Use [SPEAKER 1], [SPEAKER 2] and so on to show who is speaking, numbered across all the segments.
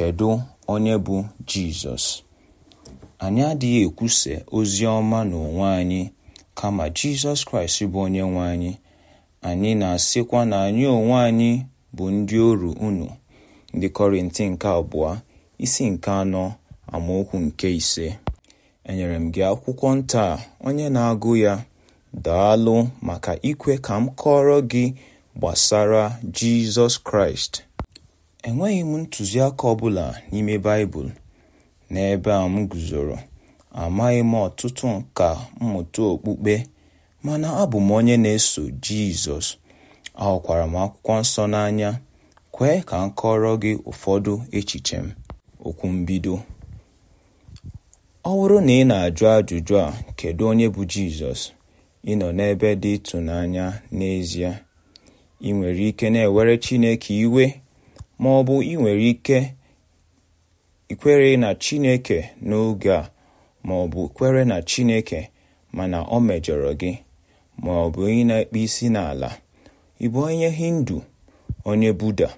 [SPEAKER 1] Kedu onye bụ Jizọs? Anyị adịghị ekwuse ozi ọma n'onwe anyị kama Jizọs Kraịst bụ onye anyị. Anyị na-asịkwa na anyị onwe anyị bụ ndị oru unu. Ndị Kọrịntị nke abụọ isi nke anọ amaokwu nke ise enyere m gị akwụkwọ nta onye na-agụ ya daalụ maka ikwe ka m kọọrọ gị gbasara Jizọs Kraịst Enweghị m ntụziaka ọbụla n'ime Baịbụl, n'ebe a m guzoro, amaghị m ọtụtụ nkà mmụta okpukpe, mana abụ m onye na-eso Jizọs ahụkwara m Akwụkwọ Nsọ n'anya. Kwee ka m kọọrọ gị ụfọdụ echiche m. Okwu mbido. Ọ bụrụ na ị na-ajụ ajụjụ a "Kedụ onye bụ Jizọs?", ị nọ n'ebe dị ịtụnanya n'ezie. Ị nwere ike na-ewere Chineke iwe ma ọ bụ ị nwere ike ikwere na Chineke n'oge a ma ọ bụ kwere na Chineke mana o mejọrọ gị ma ọ bụ onye na-ekpe isi n'ala ị bụ onye Hindu onye Buddha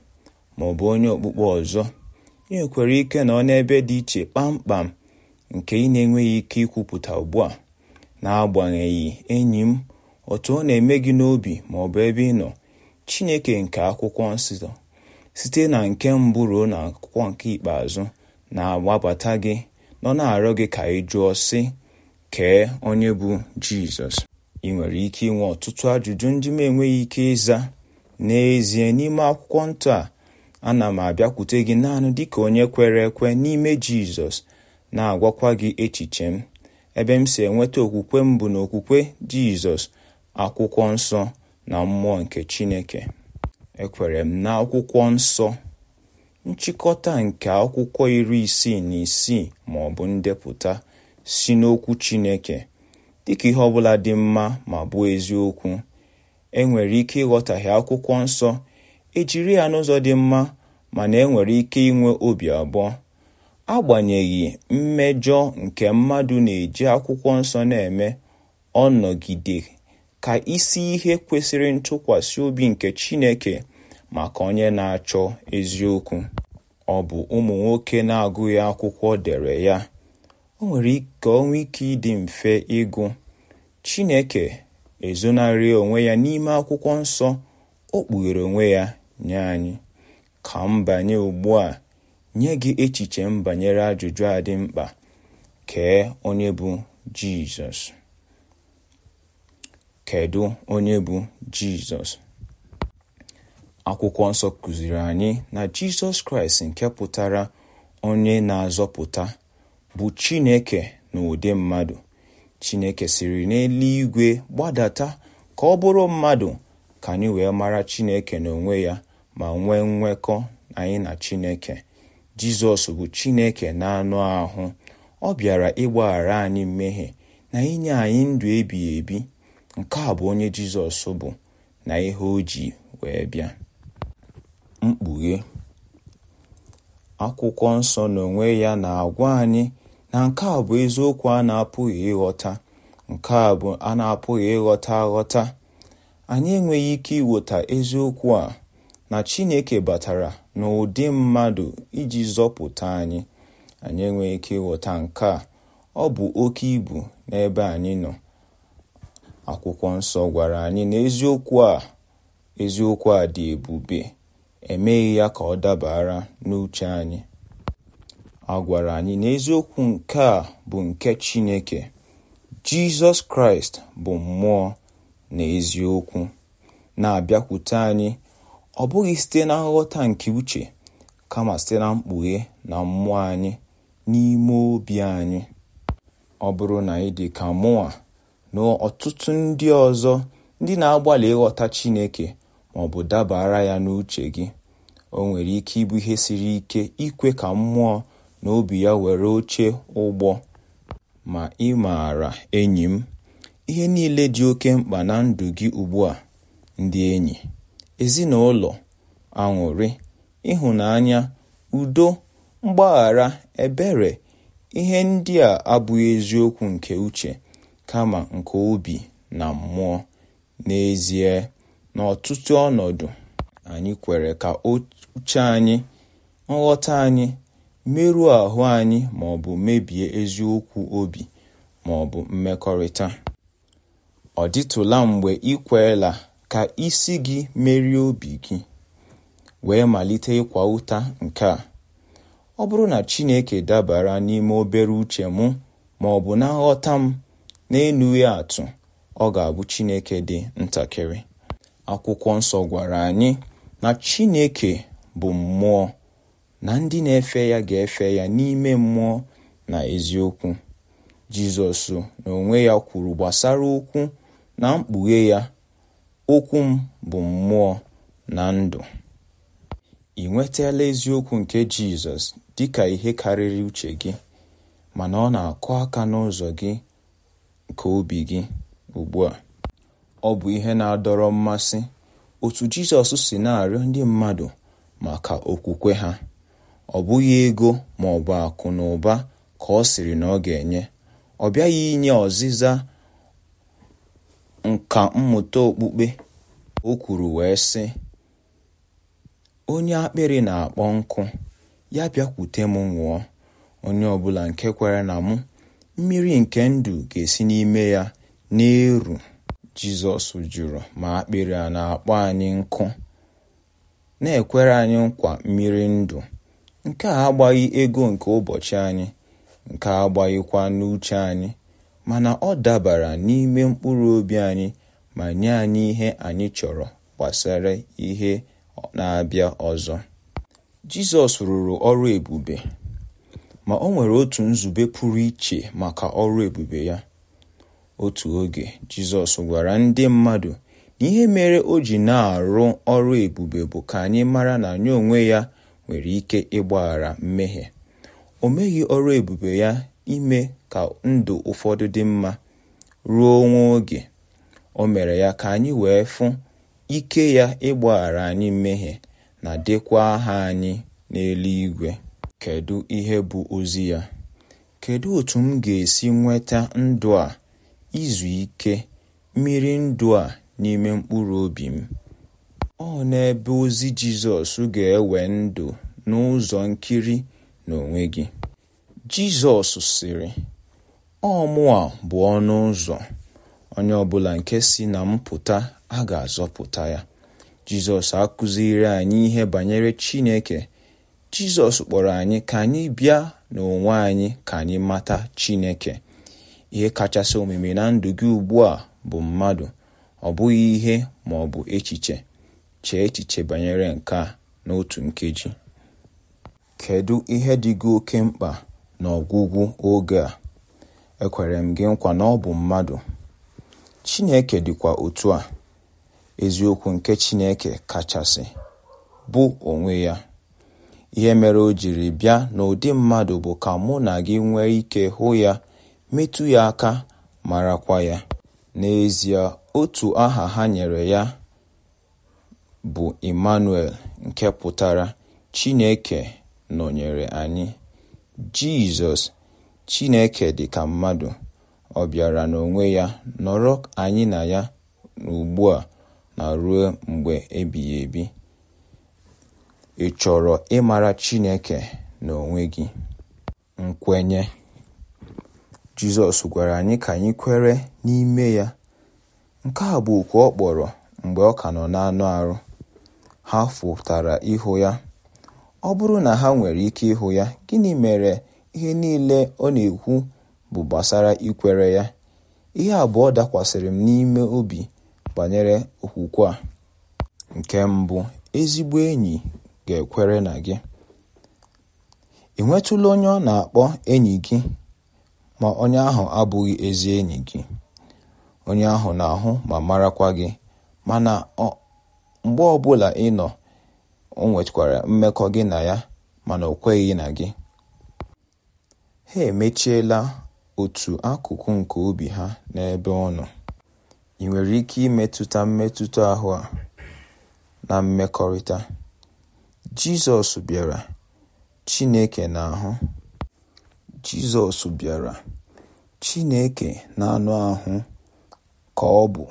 [SPEAKER 1] ma ọ bụ onye okpukpe ọzọ ị nwekwara ike nọ n'ebe dị iche kpamkpam nke ị na-enweghị ike ikwupụta ugbu a n'agbanyeghị enyi m otu ọ na-eme gị n'obi ma ọ bụ ebe ị nọ Chineke nke akwụkwọ nsọ site na nke mbụ ruo n'akwụkwọ nke ikpeazụ na-agbabata gị nọ na-arịọ gị ka ị jụọ sị kee onye bụ Jizọs ị nwere ike inwe ọtụtụ ajụjụ ndị m enweghị ike ịza n'ezie n'ime akwụkwọ ntọ a ana m abịakwute gị naanị dịka onye kwere ekwe n'ime Jizọs na-agwakwa gị echiche m ebe m si enweta okwukwe m bụ na okwukwe Jizọs akwụkwọ nsọ na mmụọ nke Chineke Ekwere m na Akwụkwọ Nsọ, nchịkọta nke akwụkwọ iri isii na isii ma ọ bụ ndepụta si n'okwu Chineke, dịka ihe ọ bụla dị mma ma bụ eziokwu, e nwere ike ịghọtahie Akwụkwọ Nsọ ejiri ya n'ụzọ dị mma mana enwere ike inwe obi abụọ, agbanyeghị mmejọ nke mmadụ na-eji Akwụkwọ Nsọ na-eme, ọ nọgide ka isi ihe kwesịrị ntụkwasị obi nke Chineke maka onye na-achọ eziokwu ọ bụ ụmụ nwoke na-agụghị akwụkwọ dere ya o nwere ka onwe ike ịdị mfe ịgụ Chineke ezonarị onwe ya n'ime akwụkwọ nsọ o kpughere onwe ya nye anyị ka mbanye ugbu a nye gị echiche m banyere ajụjụ a dị mkpa kee onye bụ Jizọs Kedụ onye bụ Jizọs? Akwụkwọ Nsọ kụziri anyị na Jizọs Kraịst nke pụtara onye na-azọpụta bụ Chineke na ụdị mmadụ. Chineke siri n'eluigwe gbadata ka ọ bụrụ mmadụ ka anyị wee mara Chineke n'onwe ya ma nwee nwekọ anyị na Chineke. Jizọs bụ Chineke na-anụ ahụ ọ bịara ịgbaghara anyị mmehie na inye anyị ndụ ebighị ebi Nke a bụ onye Jizọs bụ na ihe o ji wee bịa. Mkpughe akwụkwọ nsọ n'onwe ya na-agwa anyị na nke a bụ eziokwu a na-apụghị ịghọta nke a bụ a na-apụghị ịghọta aghọta anyị enweghị ike ịghọta eziokwu a na Chineke batara n'ụdị mmadụ iji zọpụta anyị anyị enweghị ike ịghọta nke a ọ bụ oke ibu n'ebe anyị nọ akwụkwọ nsọ gwara anyị na eziokwu a eziokwu a dị ebube emeghị ya ka ọ dabara n'uche anyị a gwara anyị na eziokwu nke a bụ nke Chineke Jizọs Kraịst bụ mmụọ na eziokwu na-abịakwute anyị ọ bụghị site na nghọta nke uche kama site na mkpughe na mmụọ anyị n'ime obi anyị ọ bụrụ na ị dị ka mụnwa na ọtụtụ ndị ọzọ ndị na-agbalị ịghọta Chineke ma ọ bụ dabara ya n'uche gị o nwere ike ịbụ ihe siri ike ikwe ka mmụọ na obi ya were oche ụgbọ ma ị maara enyi m ihe niile dị oke mkpa na ndụ gị ugbu a ndị enyi ezinụlọ aṅụrị ịhụnanya udo mgbaghara ebere ihe ndị a abụghị eziokwu nke uche kama nke obi na mmụọ. N'ezie, n'ọtụtụ ọnọdụ, anyị kwere ka uche anyị, nghọta anyị, merụọ ahụ anyị ma ọ bụ mebie eziokwu obi ma ọ bụ mmekọrịta. Ọ dịtụla mgbe ịkwela kweela ka isi gị merie obi gị, wee malite ịkwa ụta nke a: ọ bụrụ na Chineke dabara n'ime obere uche m ma bụ na nghọta m, n'enughị atụ ọ ga-abụ Chineke dị ntakịrị akwụkwọ nsọ gwara anyị na Chineke bụ mmụọ na ndị na-efe ya ga-efe ya n'ime mmụọ na eziokwu Jizọs n'onwe ya kwuru gbasara okwu na mkpughe ya okwu m bụ mmụọ na ndụ ị nwetala eziokwu nke Jizọs dị ka ihe karịrị uche gị mana ọ na-akụ aka n'ụzọ gị nke obi gị ugbu a. Ọ bụ ihe na-adọrọ mmasị otu Jizọs si na-arịọ ndị mmadụ maka okwukwe ha. Ọ bụghị ego ma ọ bụ akụ na ụba ka ọ sịrị na ọ ga-enye. Ọ bịaghị inye ọzịza nka mmụta okpukpe. O kwuru wee sị, Onye akpịrị na-akpọ nkụ, ya bịakwute m nwụọ! Onye ọbụla nke kwere na mụ mmiri nke ndụ ga-esi n'ime ya na-eru Jizọs jụrụ ma akpịrị a na-akpọ anyị nkụ na-ekwere anyị nkwa mmiri ndụ nke a agbaghị ego nke ụbọchị anyị nke a agbaghịkwa n'uche anyị mana ọ dabara n'ime mkpụrụ obi anyị ma nye anyị ihe anyị chọrọ gbasara ihe na-abịa ọzọ Jizọs rụrụ ọrụ ebube ma o nwere otu nzube pụrụ iche maka ọrụ ebube ya. Otu oge Jizọs gwara ndị mmadụ na ihe mere o ji na-arụ ọrụ ebube bụ ka anyị mara na anyị onwe ya nwere ike ịgbaghara mmehie. O meghị ọrụ ebube ya ime ka ndụ ụfọdụ dị mma ruo nwa oge. O mere ya ka anyị wee fụ ike ya ịgbaghara anyị mmehie na dịkwa aha anyị n'eluigwe. Kedu ihe bụ ozi ya? Kedu otu m ga-esi nweta ndụ a, izu ike, mmiri ndụ a n'ime mkpụrụ obi m? Ọ n'ebe ozi Jizọs ga-ewe ndụ n'ụzọ nkiri n'onwe gị. Jizọs sịrị, ọ bụ ọnụ ụzọ. Onye ọbụla nke si na mpụta a ga-azọpụta ya. Jizọs akụziri anyị ihe banyere Chineke Jizọs kpọrọ anyị ka anyị bịa n'onwe anyị ka anyị mata Chineke ihe kachasị omume na ndụ gị ugbu a bụ mmadụ ọ bụghị ihe ma ọ bụ echiche chee echiche banyere nke a n'otu nkeji kedu ihe dị gị oke mkpa ọgwụgwụ oge a ekwere m gị nkwa na ọ bụ mmadụ Chineke dịkwa otu a eziokwu nke Chineke kachasị bụ onwe ya Ihe mere o jiri bịa n'ụdị mmadụ bụ ka mụ na gị nwee ike hụ ya, metụ ya aka, marakwa ya. N'ezie, otu aha ha nyere ya bụ Emmanuel nke pụtara Chineke nọnyere anyị. Jizọs, Chineke dịka mmadụ, ọ bịara n'onwe ya nọrọ anyị na ya ugbu a na ruo mgbe ebighị ebi. Ị chọrọ ịmara Chineke n'onwe gị? Nkwenye Jizọs gwara anyị ka anyị kwere n'ime ya nke a bụ oku ọ kpọrọ mgbe ọ ka nọ n'anụ arụ ha fụtara ịhụ ya ọ bụrụ na ha nwere ike ịhụ ya gịnị mere ihe niile ọ na-ekwu bụ gbasara ikwere ya ihe abụọ dakwasịrị m n'ime obi banyere okwukwe a nke mbụ ezigbo enyi ga-ekwere na gị ị nwetụla onye ọ na-akpọ enyi gị ma onye ahụ abụghị ezi enyi gị onye ahụ na-ahụ ma marakwa gị mana mgbe ọbụla ị nọ o nwekwara mmekọ gị na ya mana o kweghị na gị ha emechiela otu akụkụ nke obi ha n'ebe ọ nọ ị nwere ike imetụta mmetụta ahụ a na mmekọrịta Jizọs bịara Chineke na-ahụ. Jizọs bịara Chineke na n'anụ ahụ ka ọ bụ,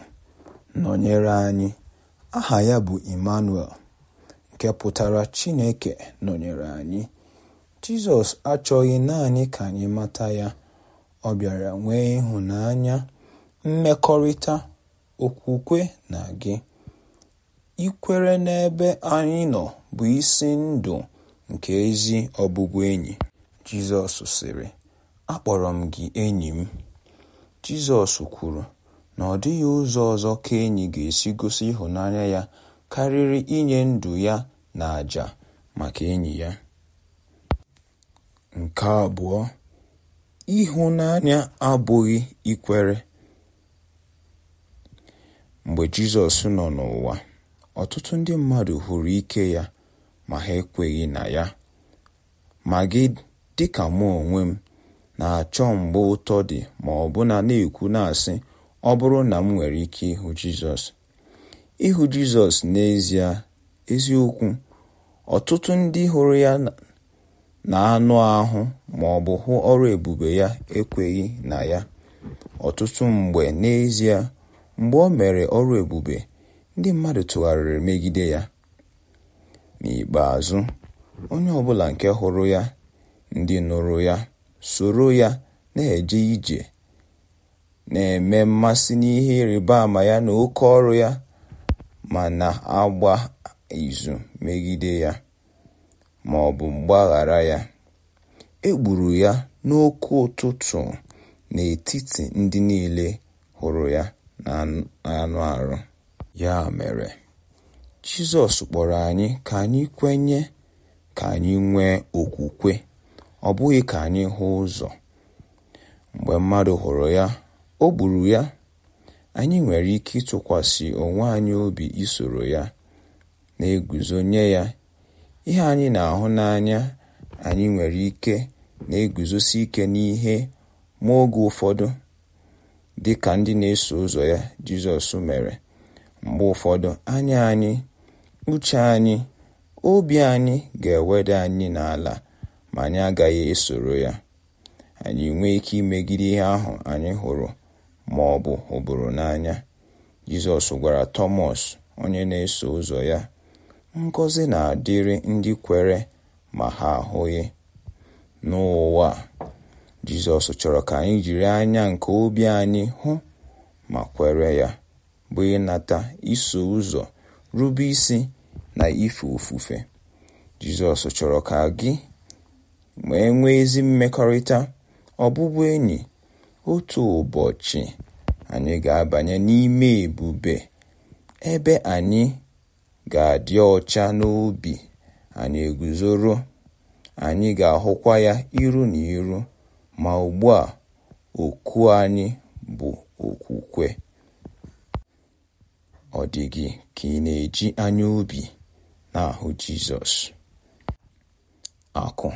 [SPEAKER 1] nọnyere anyị. Aha ya bụ Immanuel, nke pụtara Chineke nọnyere anyị. Jizọs achọghị naanị ka anyị mata ya, ọ bịara nwee ịhụnanya, mmekọrịta, okwukwe na gị. Ikwere n'ebe anyị nọ bụ isi ndụ nke ezi enyi, Jizọs sịrị, “Akpọrọ m gị enyi m,” Jizọs kwuru na ọ dịghị ụzọ ọzọ ka enyi ga-esi gosi ịhụnanya ya karịrị inye ndụ ya na àjà maka enyi ya. Nke abụọ, ịhụnanya abụghị ikwere. Mgbe Jizọs nọ n'ụwa, Ọtụtụ ndị mmadụ hụrụ ike ya ma ha ekweghị na ya, ma gị dịka mụ onwe m, na-achọ mgbe ụtọ dị ma ọ bụ na-ekwu na na-asị ọ bụrụ na m nwere ike ịhụ Jizọs. Ịhụ Jizọs n'ezie eziokwu, ọtụtụ ndị hụrụ ya na anụ ahụ ma bụ hụ ọrụ ebube ya ekweghị na ya, ọtụtụ mgbe n'ezie mgbe o mere ọrụ ebube ndị mmadụ tụgharịrị megide ya. N'ikpeazụ, onye ọbụla nke hụrụ ya, ndị nụrụ ya, soro ya na-eje ije, na eme mmasị n'ihe ịrịba ama ya na oke ọrụ ya ma na-agba izu megide ya ma ọ bụ mgbaghara ya. E gburu ya n'oke ụtụtụ n'etiti ndị niile hụrụ ya na anụ arụ. Ya mere, Jizọs kpọrọ anyị ka anyị kwenye, ka anyị nwee okwukwe, ọ bụghị ka anyị hụ ụzọ. Mgbe mmadụ hụrụ ya, o gburu ya. Anyị nwere ike ịtụkwasị onwe anyị obi isoro ya, na eguzonye ya. Ihe anyị na-ahụ n'anya anyị nwere ike na-eguzosi ike n'ihe ma oge ụfọdụ, dị ka ndị na-eso ụzọ ya Jizọs mere. Mgbe ụfọdụ anya anyị, uche anyị, obi anyị ga-eweda anyị n'ala ma anyị agaghị esoro ya. Anyị nwee ike imegide ihe ahụ anyị hụrụ ma ọ bụ hụbụrụ n'anya. Jizọs gwara Tomos onye na-eso ụzọ ya, ngozi na-adịrị ndị kwere ma ha ahụghị." N'ụwa Jizọs chọrọ ka anyị jiri anya nke obi anyị hụ ma kwere ya. bụ ịnata iso ụzọ rube isi na ife ofufe Jizọs chọrọ ka gị ma enwee nwee ezi mmekọrịta ọbụbụenyi otu ụbọchị anyị ga-abanye n'ime ebube ebe anyị ga-adị ọcha n'obi anyị eguzoro anyị ga-ahụkwa ya iru na iru ma ugbu a oku anyị bụ okwukwe ọ dị gị ka ị na-eji anya obi na-ahụ Jizọs akụ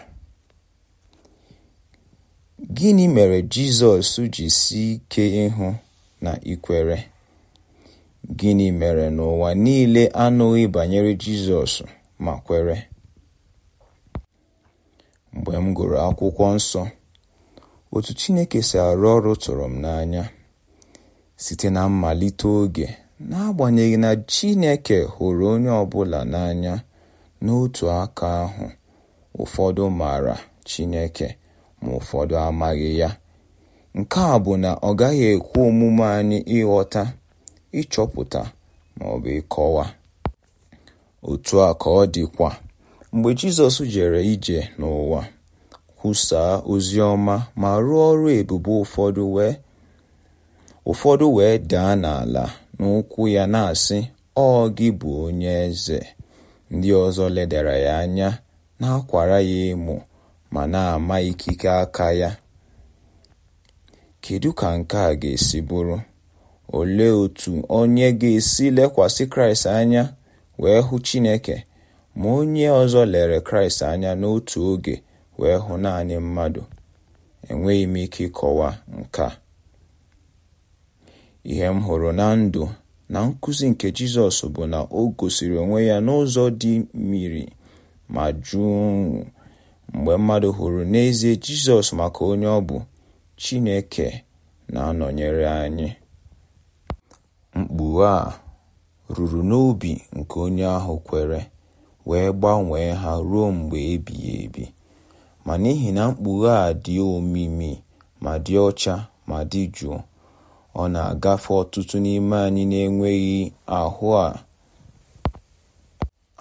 [SPEAKER 1] gịnị mere Jizọs ji si ike ịhụ na ikwere gịnị mere n'ụwa niile anụghị banyere Jizọs ma kwere mgbe m gụrụ akwụkwọ nsọ otu Chineke si arụ ọrụ tụrụ m n'anya site na mmalite oge N'agbanyeghị na Chineke hụrụ onye ọbụla n'anya, n'otu aka ahụ, ụfọdụ maara Chineke ma ụfọdụ amaghị ya, nke a bụ na ọ gaghị ekwe omume anyị ịghọta, ịchọpụta maọbụ ịkọwa. Otu a ka ọ dịkwa mgbe Jizọs jere ije n'ụwa, kwusaa ozi ọma ma rụọ ọrụ ebube ụfọdụ wee daa n'ala. n'ụkwụ ya na-asị ọ gị bụ onye eze ndị ọzọ ledara ya anya na-akwara ya emo ma na-ama ikike aka ya kedu ka nke a ga-esi bụrụ olee otu onye ga-esi lekwasị kraịst anya wee hụ chineke ma onye ọzọ lere kraịst anya n'otu oge wee hụ naanị mmadụ enweghị m ike ịkọwa nke a Ihe m hụrụ na ndụ na nkuzi nke Jizọs bụ na o gosiri onwe ya n'ụzọ dị mmiri ma jụụ mgbe mmadụ hụrụ n'ezie Jizọs maka onye ọ bụ, Chineke na-anọnyere anyị. Mkpughe a ruru n'obi nke onye ahụ kwere wee gbanwee ha ruo mgbe ebighị ebi. Ma n'ihi na mkpughe a dị omimi ma dị ọcha ma dị jụụ Ọ na-agafe ọtụtụ n'ime anyị na-enweghị ahụ a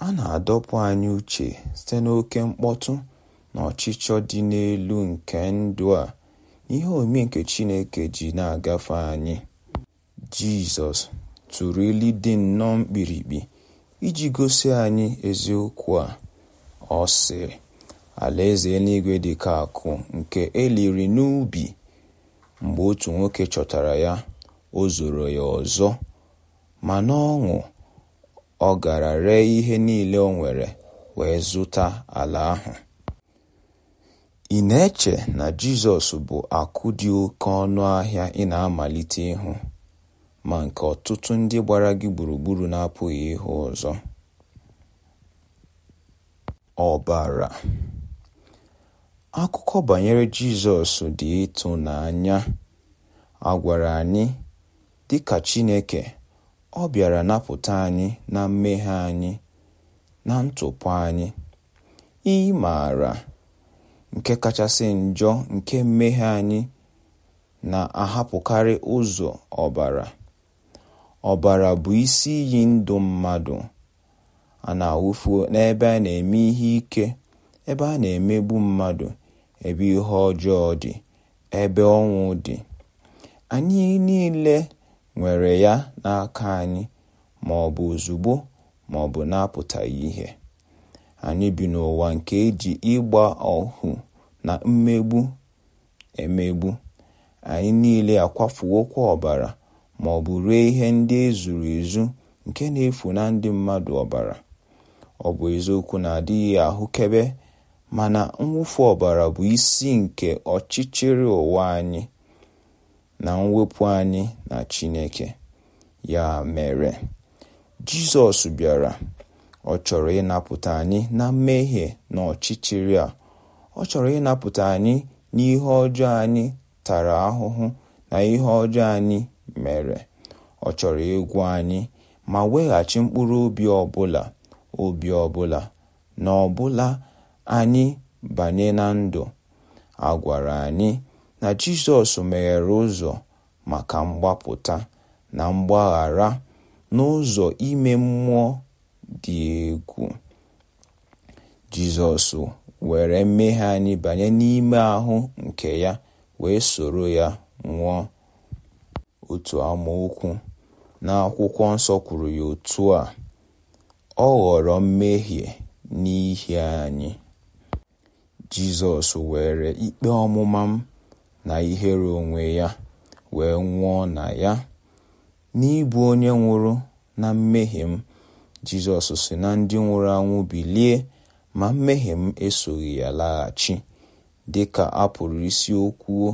[SPEAKER 1] a na-adọpụ anyị uche site n'oke mkpọtụ na ọchịchọ dị n'elu nke ndụ a ihe omi nke Chineke ji na-agafe anyị. Jizọs tụrụ ilu dị nnọọ mkpirikpi iji gosi anyị eziokwu a. Ọ sị, Alaeze eluigwe dị ka akụ nke eliri n'ubi. Mgbe otu nwoke chọtara ya, o zoro ya ọzọ, ma n'ọṅụ ọ gara ree ihe niile o nwere wee zụta ala ahụ. Ị na-eche na Jizọs bụ akụ dị oke ọnụ ahịa ị na-amalite ịhụ, ma nke ọtụtụ ndị gbara gị gburugburu na-apụghị ịhụ ọzọ? Ọbara Akụkọ banyere Jizọs dị ịtụnanya a gwara anyị, dịka Chineke, ọ bịara napụta anyị na mmehie anyị na ntụpụ anyị. Ị maara nke kachasị njọ nke mmehie anyị na-ahapụkarị ụzọ ọbara. Ọbara bụ isi iyi ndụ mmadụ a na n'ebe a na-eme ihe ike, ebe a na-emegbu mmadụ ebe ihe ọjọọ dị ebe ọnwụ dị anyị niile nwere ya n'aka anyị ma ọ bụ ozugbo ma ọ bụ na-apụtaghị ihe anyị bi n'ụwa nke eji ịgba ohu na mmegbu emegbu anyị niile akwafuokwa ọbara ma ọ bụ ree ihe ndị ezuru ezu nke na-efu na ndị mmadụ ọbara ọ bụ eziokwu na adịghị ahụkebe mana mwụfu ọbara bụ isi nke ọchịchịrị ụwa anyị na mwepụ anyị na Chineke. Ya mere, Jizọs bịara ọ chọrọ ịnapụta anyị na mmehie na ọchịchịrị a ọ chọrọ ịnapụta anyị n'ihe ọjọọ anyị tara ahụhụ na ihe ọjọọ anyị mere ọ chọrọ ịgwụ anyị ma weghachi mkpụrụ obi ọbụla obi ọbụla na ọbụla anyị banye na ndụ a gwara anyị na Jizọs meghere ụzọ maka mgbapụta na mgbaghara n'ụzọ ime mmụọ dị egwu Jizọs were mmehie anyị banye n'ime ahụ nke ya wee soro ya nwụọ otu amaokwu n'akwụkwọ nsọ kwuru ya otu a ọ ghọrọ mmehie n'ihi anyị Jizọs were ikpe ọmụma m na ihere onwe ya wee nwụọ na ya n'ịbụ onye nwụrụ na mmehie m Jizọs si na ndị nwụrụ anwụ bilie ma mmehie m esoghị ya laghachi dị ka a pụrụ isi okwuo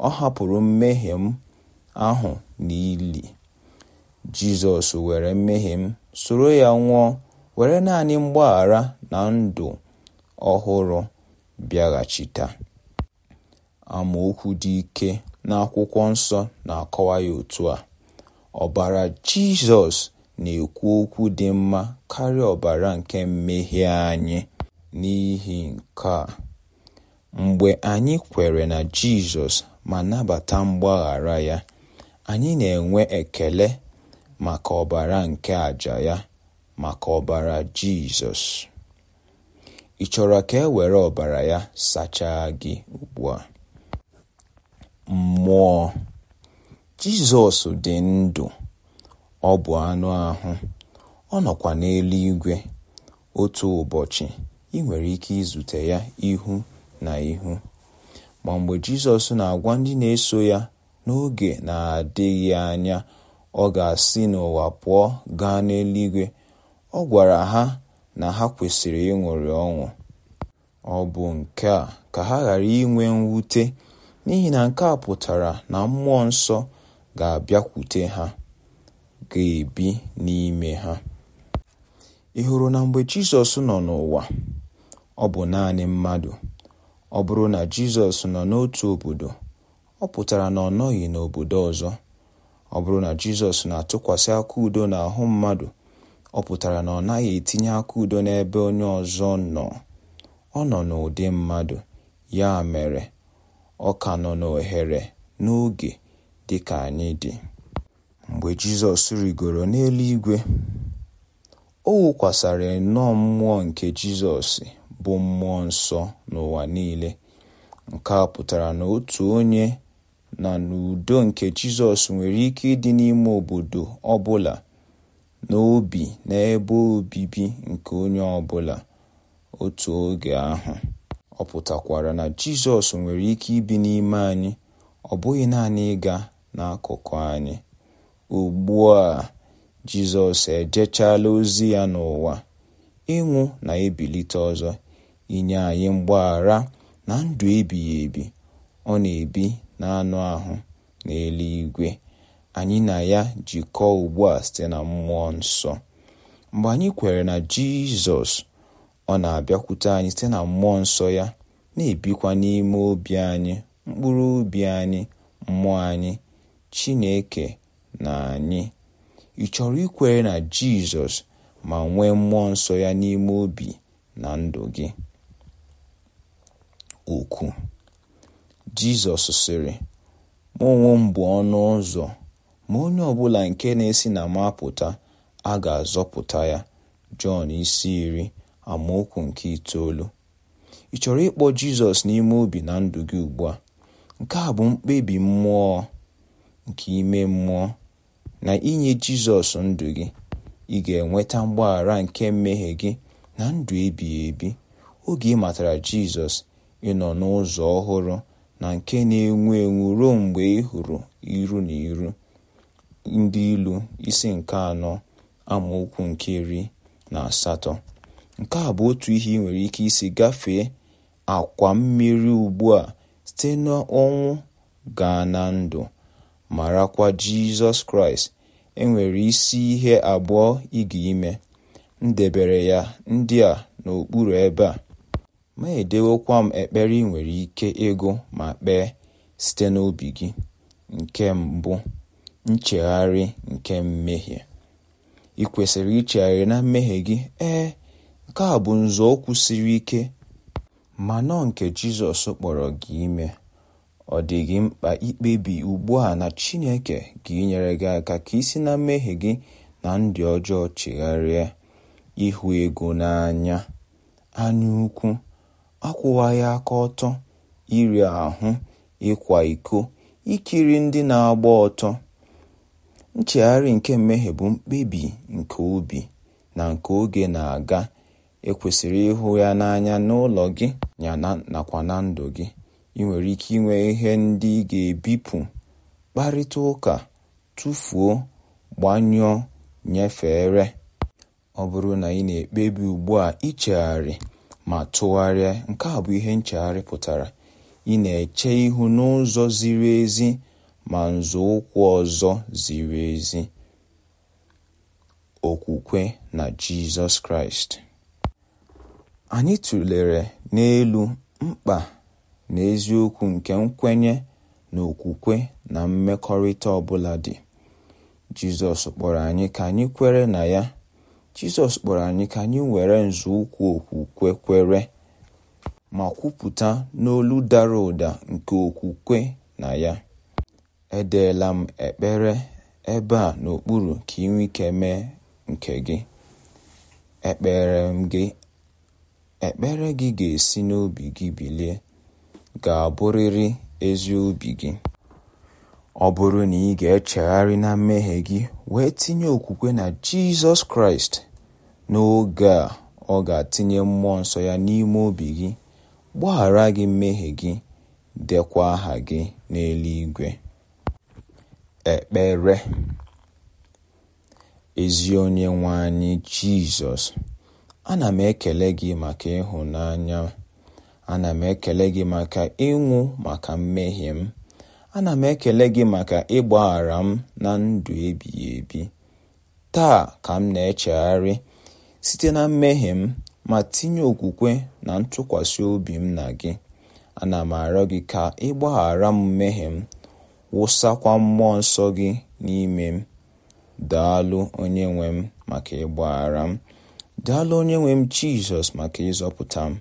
[SPEAKER 1] ọ hapụrụ mmehie m ahụ n'ili Jizọs were mmehie m soro ya nwụọ were naanị mgbaghara na ndụ ọhụrụ bịaghachita. Amaokwu dị ike n'akwụkwọ nsọ na-akọwa ya otu a: Ọbara Jizọs na-ekwu okwu dị mma karịa ọbara nke mmehie anyị. N'ihi nke a, mgbe anyị kwere na Jizọs ma nabata mgbaghara ya, anyị na-enwe ekele maka ọbara nke àjà ya maka ọbara Jizọs. Ị chọrọ ka e were ọbara ya sachaa gị ugbu a? Mmụọ! Jizọs dị ndụ, ọ bụ anụ ahụ, ọ nọkwa n'eluigwe. Otu ụbọchị, ị nwere ike izute ya ihu na ihu. Ma mgbe Jizọs na-agwa ndị na-eso ya n'oge na-adịghị anya ọ ga-asị n'ụwa pụọ gaa n'eluigwe, ọ gwara ha na ha kwesịrị ịṅụrị ọnwụ. ọ bụ nke a ka ha ghara inwe mwute n'ihi na nke a pụtara na mmụọ nsọ ga-abịakwute ha ga-ebi n'ime ha ị hụrụ na mgbe Jizọs nọ n'ụwa ọ bụ naanị mmadụ ọ bụrụ na Jizọs nọ n'otu obodo ọ pụtara na ọ nọghị n'obodo ọzọ ọ bụrụ na Jizọs na-atụkwasị aka udo n'ahụ mmadụ ọ pụtara na ọ naghị etinye aka udo n'ebe onye ọzọ nọ ọ nọ n'ụdị mmadụ ya mere ọ ka nọ n'ohere n'oge dị ka anyị dị mgbe Jizọs rigoro n'eluigwe o wụkwasịrị nnọọ mmụọ nke Jizọs bụ mmụọ nsọ n'ụwa niile nke a pụtara na otu onye na n'udo nke Jizọs nwere ike ịdị n'ime obodo ọ bụla n'obi na ebe obibi nke onye ọbụla otu oge ahụ. Ọ pụtakwara na Jizọs nwere ike ibi n'ime anyị, ọ bụghị naanị ịga n'akụkụ anyị. Ugbu a Jizọs ejechaala ozi ya n'ụwa, ịnwụ na ebilite ọzọ, inye anyị mgbaghara na ndụ ebighị ebi ọ na-ebi n'anụ ahụ n'eluigwe. anyị na ya jikọọ ugbu a site na mmụọ nsọ mgbe anyị kwere na jizọs ọ na-abịakwute anyị site na mmụọ nsọ ya na-ebikwa n'ime obi anyị mkpụrụ obi anyị mmụọ anyị chineke na anyị ị chọrọ ikwere na jizọs ma nwee mmụọ nsọ ya n'ime obi na ndụ gị okwu jizọs sịrị mụ m bụ ọnụ ụzọ ma onye ọ bụla nke na-esi na mapụta a ga-azọpụta ya jọn isi iri amaokwu nke itoolu ị chọrọ ịkpọ jizọs n'ime obi na ndụ gị ugbu a nke a bụ mkpebi mmụọ nke ime mmụọ na inye jizọs ndụ gị ị ga-enweta mgbaghara nke mmehie gị na ndụ ebighị ebi oge ị matara jizọs ị n'ụzọ ọhụrụ na nke na-enwu enwu ruo mgbe ị hụrụ iru na iru ndị ilu isi nke anọ amaokwu nke iri na asatọ nke a bụ otu ihe ị nwere ike isi gafee akwa mmiri ugbu a site n'ọnwụ gaa na ndụ marakwa jizọs kraịst enwere isi ihe abụọ ịga ime ndebere ya ndị a n'okpuru ebe a ma edewekwa m ekpere ị nwere ike ego ma kpee site n'obi gị nke mbụ Nchegharị nke Mmehie: Ị kwesịrị ichegharị na mmehie gị ee, nke a bụ nzọụkwụ siri ike ma nọ nke Jizọs kpọrọ gị ime, ọ dị gị mkpa ikpebi ugbu a na Chineke ga-enyere gị aka ka isi na mmehie gị na ndị ọjọọ chegharịa, ịhụ ego n'anya, anyaukwu, akwụwaghị aka ọtọ, iri ahụ, ịkwa iko, ikiri ndị na-agba ọtọ, Nchegharị nke mmehie bụ mkpebi nke obi na nke oge na-aga, ekwesịrị ịhụ ya n'anya n'ụlọ gị ya nakwa na ndụ gị. ị nwere ike inwe ihe ndị ị ga-ebipụ, kparịta ụka, tụfuo gbanyụọ, nyefere. Ọ bụrụ na ị na-ekpebi ugbu a ichegharị ma tụgharịa, nke a bụ ihe nchegharị pụtara: Ị na-eche ihu n'ụzọ ziri ezi ma nzọụkwụ ọzọ ziri ezi — okwukwe na Jizọs Kraịst. Anyị tụlere n'elu mkpa na eziokwu nke nkwenye na okwukwe na mmekọrịta ọbụla dị. Jizọs kpọrọ anyị ka anyị kwere na ya. Jizọs kpọrọ anyị ka anyị were nzọụkwụ okwukwe kwere ma kwupụta n'olu dara ụda nke okwukwe na ya. Edeela m ekpere ebe a n'okpuru ka i nwee ike mee nke gị. ekpere m gị, ekpere gị ga-esi n'obi gị bilie ga-abụrịrị ezi obi gị. Ọ bụrụ na ị ga-echegharị na mmehie gị wee tinye okwukwe na Jizọs Kraịst, n'oge a ọ ga-atinye Mmụọ Nsọ ya n'ime obi gị, gbaghara gị mmehie gị, dekwa aha gị n'eluigwe. ekpere ezi onye anyị jizọs ana m ekele gị maka ịhụnanya ana m ekele gị maka ịnwụ maka mmehie m ana m ekele gị maka ịgbaghara m na ndụ ebighị ebi taa ka m na-echegharị site na mmehie m ma tinye okwukwe na ntụkwasị obi m na gị ana m arịọ gị ka ịgbaghara m mmehie m wụsakwa Mmụọ Nsọ gị n'ime m. Daalụ nwe m maka ịgbaghara m. Daalụ nwe m Jizọs maka ịzọpụta m.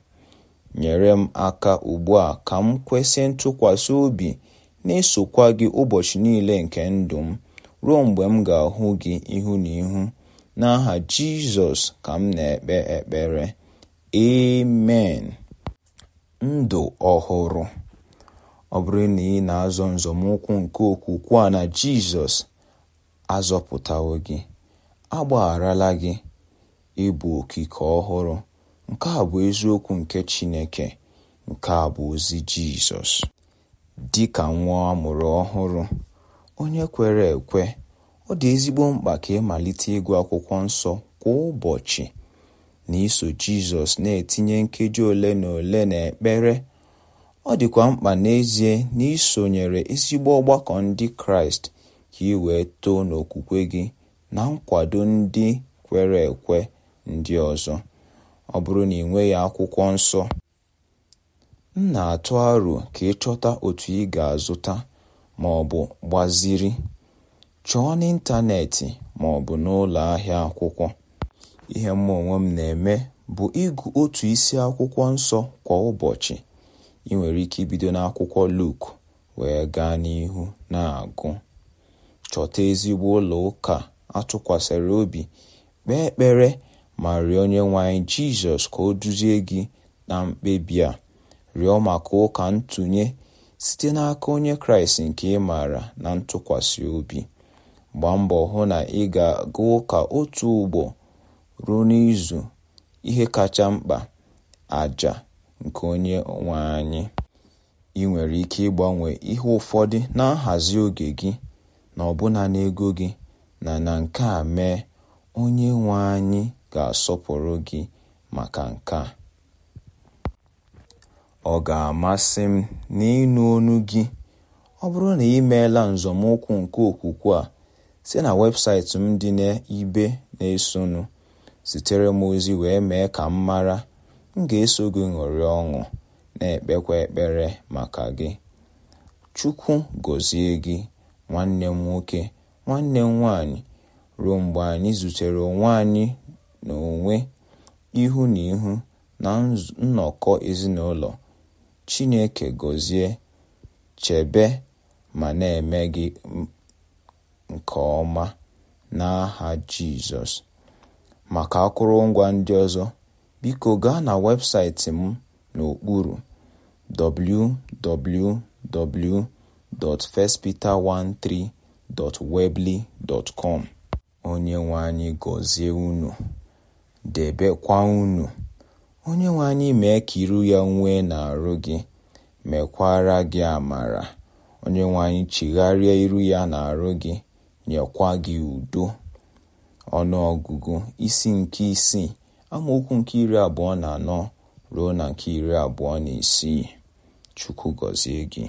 [SPEAKER 1] Nyere m aka ugbu a ka m kwesị ntụkwasị obi na-esokwa gị ụbọchị niile nke ndụ m ruo mgbe m ga-ahụ gị ihu na ihu. N'aha Jizọs ka m na-ekpe ekpere. Amen. Ndụ ọhụrụ Ọ bụrụ na ị na-azọ nzọmụkwụ nke okwukwe a na Jizọs azọpụtawo gị agbagharala gị ịbụ okike ọhụrụ nke a bụ eziokwu nke Chineke nke a bụ ozi Jizọs dị ka nwa amụrụ ọhụrụ onye kwere ekwe ọ dị ezigbo mkpa ka ịmalite ịgụ akwụkwọ nsọ kwa ụbọchị na iso Jizọs na-etinye nkeji ole na ole na ekpere. Ọ dịkwa mkpa n'ezie na ị sonyere ezigbo ọgbakọ Ndị Kraịst ka ị wee too n'okwukwe gị na nkwado ndị kwere ekwe ndị ọzọ. Ọ bụrụ na ị nweghị Akwụkwọ Nsọ, m na-atụ aro ka ị chọta otu ị ga-azụta ma ọ bụ gbaziri. Chọọ n'ịntanetị ma ọ bụ n'ụlọ ahịa akwụkwọ. Ihe Mma onwe m na-eme bụ ịgụ otu isi Akwụkwọ Nsọ kwa ụbọchị. ị nwere ike ibido n'akwụkwọ Luk wee gaa n'ihu na-agụ chọta ezigbo ụlọ ụka atụkwasịrị obi kpee ekpere ma rịọ onye nwanyị Jizọs ka o duzie gị na mkpebi a rịọ maka ụka ntụnye site n'aka onye Kraịst nke ị maara na ntụkwasị obi gbaa mbọ hụ na ị ga-aga ụka otu ugbo ruo n'izu ihe kacha mkpa aja. nke onye nwe anyị. Ị nwere ike ịgbanwe ihe ụfọdụ na nhazi oge gị na ọbụna n'ego gị na na nke a mee, onye nwe anyị ga-asọpụrụ gị maka nke a. Ọ ga-amasị m n'ịnụ onu gị ọ bụrụ na ị meela nke okwukwe a site na webụsaịtị m dị n'ibe na-esonụ. Zitere m ozi wee mee ka m mara m ga-eso gị ṅụrịa ọṅụ na-ekpekwa ekpere maka gị Chukwu gozie gị nwanne m nwoke nwanne m nwaanyị ruo mgbe anyị zutere onwe anyị na onwe ihu na ihu na nnọkọ ezinụlọ Chineke gọzie chebe ma na-eme gị nke ọma n'aha Jizọs maka akụrụngwa ndị ọzọ biko gaa na webụsaịtị m n'okpuru wwwfirstpeter 13webleycom onye anyị gọzie unu debekwa unu onye anyị mee ka iru ya nwee n'arụ gị mekwara gị amara onye anyị chigharịa iru ya n'arụ gị nyekwa gị udo ọnụọgụgụ isi nke isii Amaokwu nke iri abụọ na anọ ruo na nke iri abụọ na isii Chukwu gọzie gị